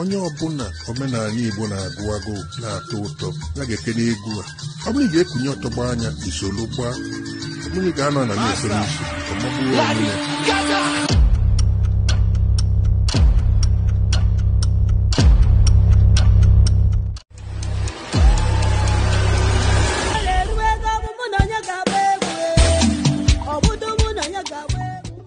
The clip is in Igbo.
onye ọbụla omenala Igbo na-agụ agụ na atọ ụtọ ya ga-ekene egwu a ọ bụrụ ga-ekunye ọtọgba anya isolu gbaa ọ bụrụ ga-anọ na na-esoro isi ọmọbụrụ ya.